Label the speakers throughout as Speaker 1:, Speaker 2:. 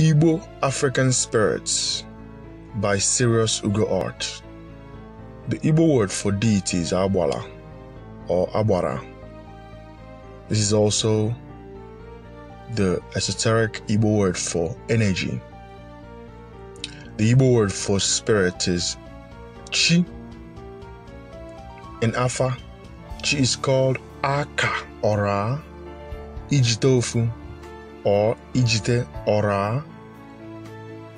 Speaker 1: Igbo African Spirits by Sirius Ugo Art. The Igbo word for deity is Abwala or Abwara. This is also the esoteric Igbo word for energy. The Igbo word for spirit is Chi. In Afa, Chi is called Aka or Ijitofu or Ijite Ora.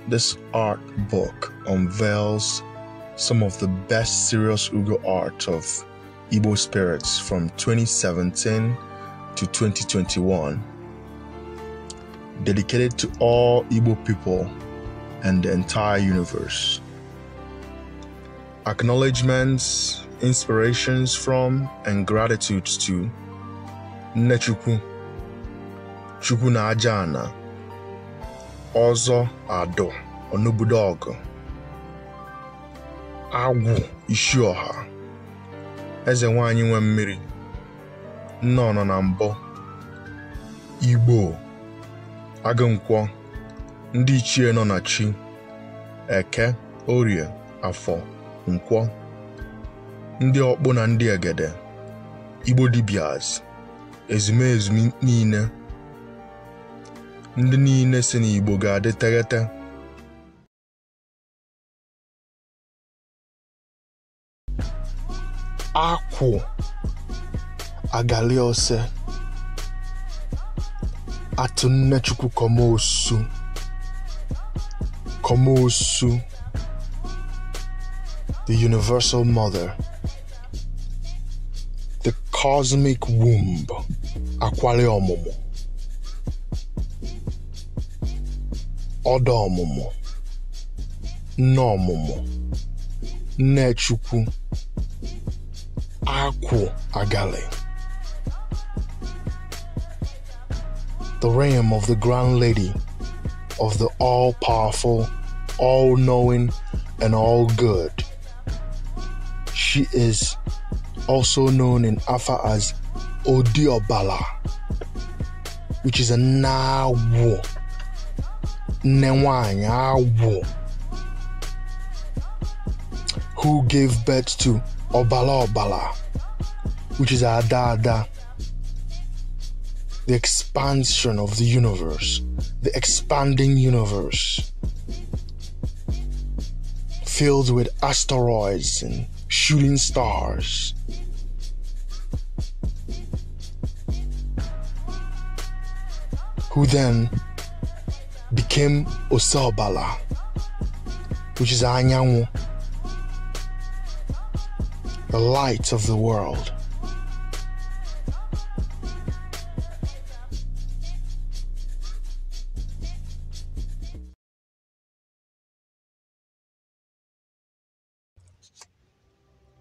Speaker 1: This art book unveils some of the best serious Ugo art of Igbo spirits from 2017 to 2021, dedicated to all Igbo people and the entire universe. Acknowledgements, inspirations from, and gratitudes to Nechukwu. Chukwu na aja ana ọzọ adụ ọnụbudo ọgụ agwụ isi ọha eze nwanyị nwe mmiri nne nọ na mbụ igbo agụnkwọ ndị ichie nọ na chi eke orie afọ nkwọ ndị ọkpụ na ndị egede igbo dibias ezumezu niile ndị niile si n'Igbo ga-adị teghete akwụ agali ose atụ nnechukwu kọmosu kọmosu the universal mother the cosmic womb akwali ọmụmụ ọdọ ọmụmụ nne ọmụmụ nnechukwu akwụ agali the realm of the grand lady of the all-powerful all-knowing and all-good she is also known in Afa as Odiobala, which is a Nawo nne nwanyị agwụ who gave birth to ọbala ọbala which is ada ada the expansion of the universe the expanding universe filled with asteroids and shooting stars who then Kim Osobala, which is Anyanwu, the light of the world.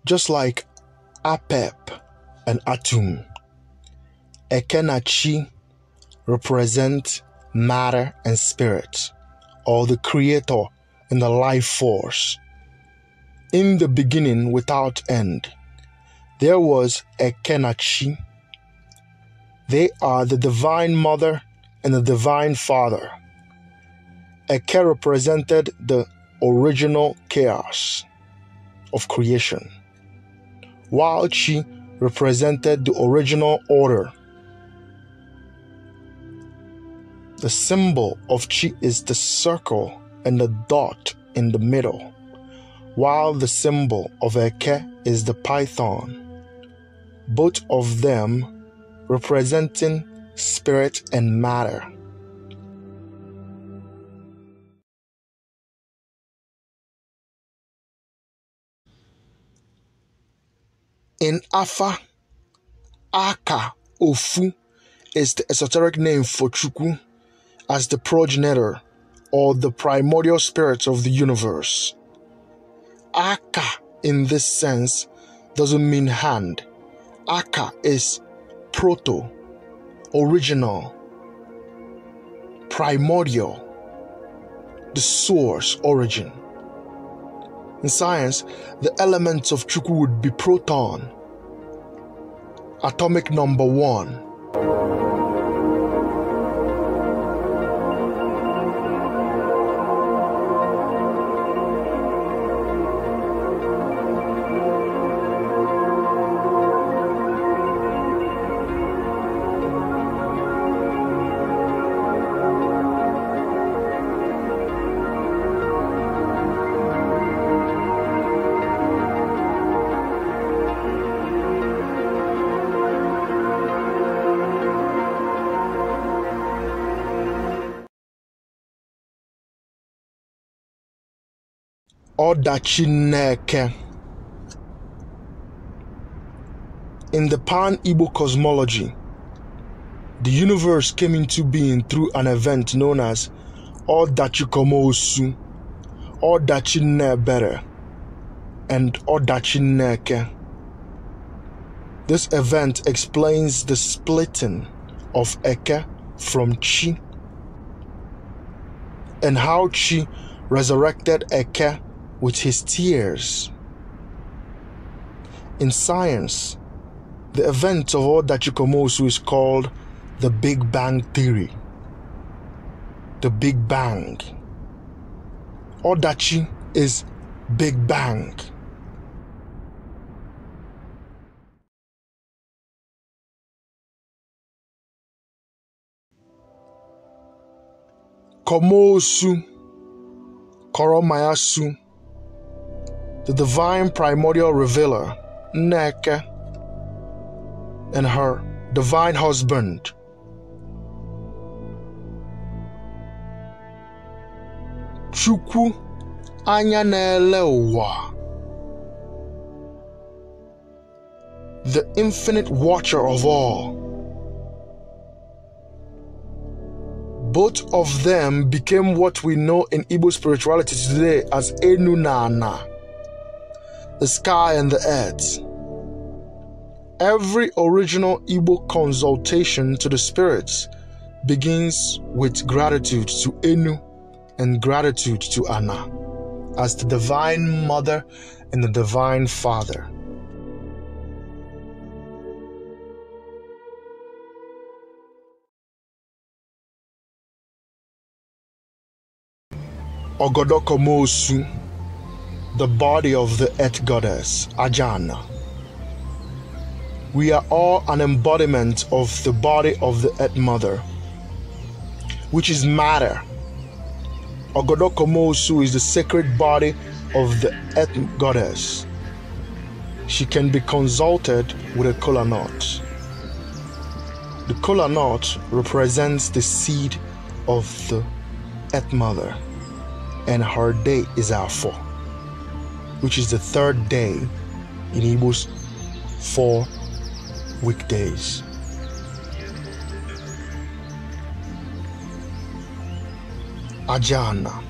Speaker 1: Just like Apep and Atum, Ekenachi represent matter, and spirit, or the creator and the life force. In the beginning, without end, there was a Kenachi. They are the divine mother and the divine father. Eke represented the original chaos of creation, while Chi represented the original order The symbol of chi is the circle and the dot in the middle, while the symbol of eke is the python. Both of them representing spirit and matter. In Afa, Aka Ofu is the esoteric name for Chukwu as the progenitor or the primordial spirit of the universe. Aka, in this sense, doesn't mean hand. Aka is proto, original, primordial, the source, origin. In science, the elements of Chukwu would be proton, atomic number one. ọdachi Nneke. In the Pan Igbo cosmology, the universe came into being through an event known as Ọdachi Komosu, Ọdachi Nnebere, and Ọdachi Nneke. This event explains the splitting of Eke from Chi and how Chi resurrected Eke with his tears. In science, the event of Odachikomosu is called the Big Bang Theory. The Big Bang. Odachi is Big Bang. Komosu, Koromayasu, the divine primordial revealer, Neke, and her divine husband. Chukwu anya The infinite watcher of all. Both of them became what we know in Igbo spirituality today as Enu Nana the sky and the earth. Every original Igbo consultation to the spirits begins with gratitude to Enu and gratitude to Anna as the Divine Mother and the Divine Father. Ogodokomosu the body of the earth goddess, Ajana. We are all an embodiment of the body of the earth mother, which is matter. Ogodokomosu is the sacred body of the earth goddess. She can be consulted with a kola knot. The kola knot represents the seed of the earth mother, and her day is our fall which is the third day in Igbo's four weekdays. Ajana.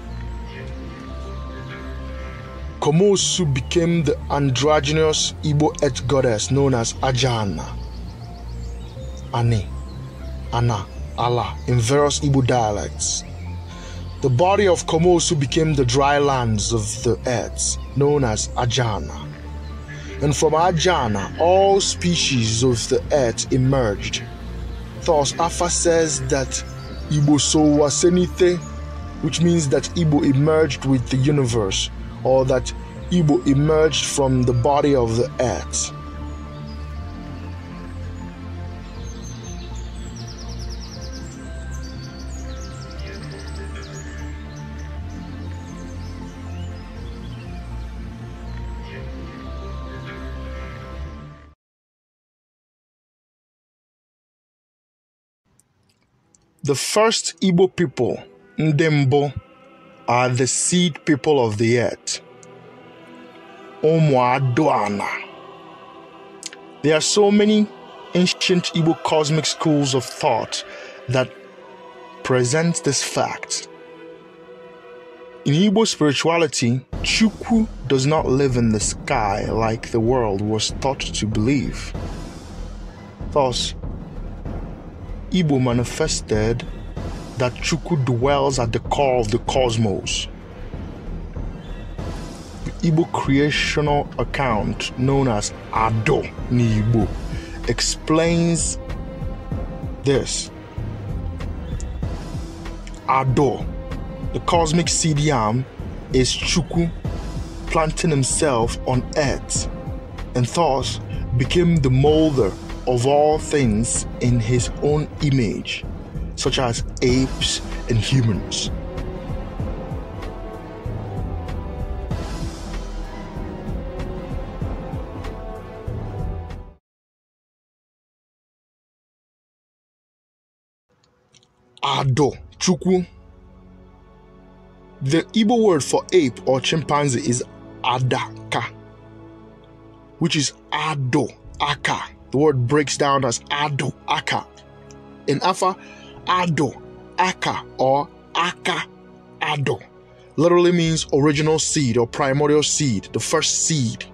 Speaker 1: Komosu became the androgynous Igbo earth goddess known as Ajana, Ani, Ana, Allah in various Igbo dialects. The body of Komosu became the dry lands of the earth, known as Ajana. And from Ajana, all species of the earth emerged. Thus, Afa says that Ibo so Senite, which means that Ibo emerged with the universe, or that Ibo emerged from the body of the earth. The first Igbo people, Ndembo, are the seed people of the earth. Omuadoana. There are so many ancient Igbo cosmic schools of thought that present this fact. In Igbo spirituality, Chukwu does not live in the sky like the world was taught to believe. Thus, Igbo manifested that Chukwu dwells at the core of the cosmos. The Igbo creational account, known as Ado Nibo, explains this. Ado, the cosmic CDM, is Chukwu planting himself on earth and thus became the molder of all things in his own image, such as apes and humans. Ado Chukwu. The Igbo word for ape or chimpanzee is adaka, which is ado aka. The word breaks down as ado aka. In Afa, ado aka or aka ado literally means original seed or primordial seed, the first seed.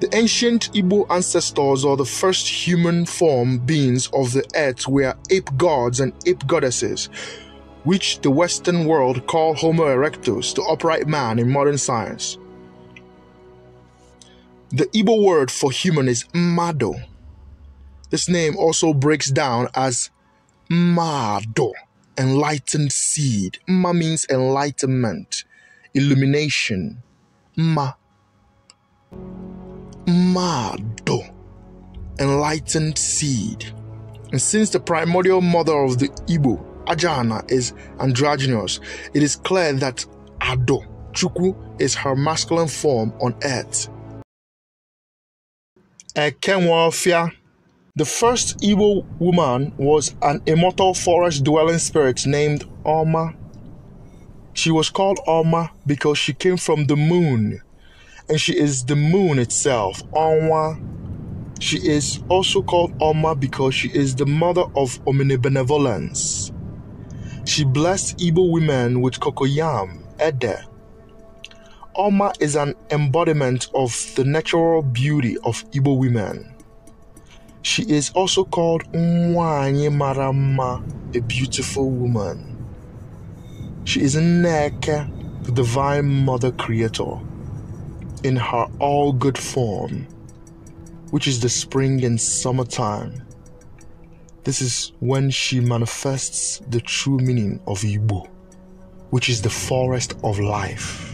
Speaker 1: The ancient Igbo ancestors or the first human form beings of the earth were ape gods and ape goddesses, which the Western world call Homo erectus, the upright man in modern science. The Igbo word for human is mado. This name also breaks down as mado, enlightened seed. Ma means enlightenment, illumination. Ma. Mado, enlightened seed. And since the primordial mother of the Igbo, Ajana, is androgynous, it is clear that Ado, Chukwu, is her masculine form on earth. Ekenwafia. The first evil woman was an immortal forest dwelling spirit named Oma. She was called Oma because she came from the moon, and she is the moon itself, Onwa. She is also called Oma because she is the mother of omnibenevolence. She blessed evil women with cocoyam, ede, Oma is an embodiment of the natural beauty of Ibo women. She is also called Mwanyi Marama, a beautiful woman. She is Neke, the divine mother creator, in her all good form, which is the spring and summertime. This is when she manifests the true meaning of Igbo, which is the forest of life.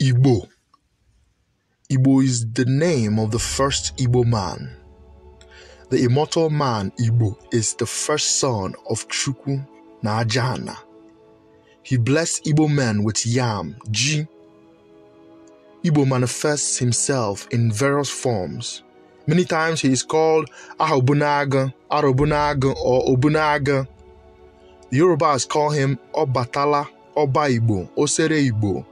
Speaker 1: Igbo. Igbo is the name of the first Igbo man. The immortal man Igbo is the first son of Chukwu na Ajana. He blessed Igbo men with yam, ji. Igbo manifests himself in various forms. Many times he is called Ahobunaga, Arobunaga, or Obunaga. The Yorubas call him Obatala, Oba Igbo, Osere Igbo,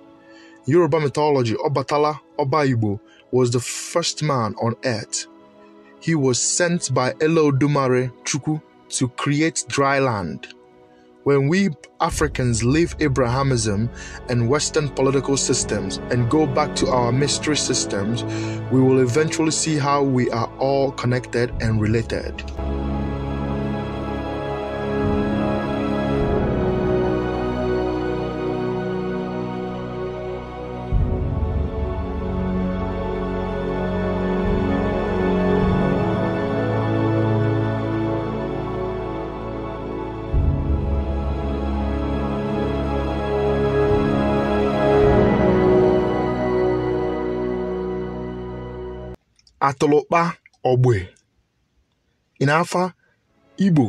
Speaker 1: Yoruba mythology, Obatala Obaibo was the first man on earth. He was sent by Elodumare Chuku to create dry land. When we Africans leave Abrahamism and Western political systems and go back to our mystery systems, we will eventually see how we are all connected and related. atụlụkpa ogbe ịnafa igbo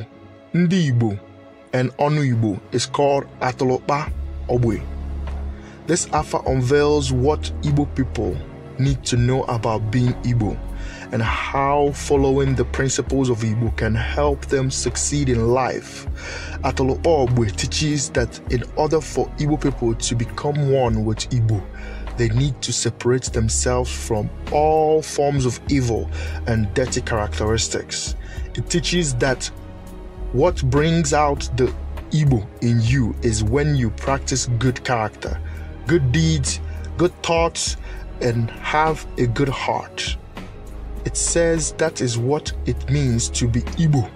Speaker 1: ndị igbo and ọnụ igbo is called atụlụkpa ogbe this Afar unveils what igbo people need to know about being Igbo and how following the principles of Igbo can help them succeed in life. Atolo Obwe teaches that in order for Igbo people to become one with Igbo, they need to separate themselves from all forms of evil and dirty characteristics. It teaches that what brings out the evil in you is when you practice good character, good deeds, good thoughts, and have a good heart. It says that is what it means to be evil.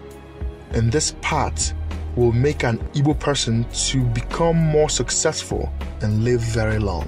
Speaker 1: And this part will make an evil person to become more successful and live very long.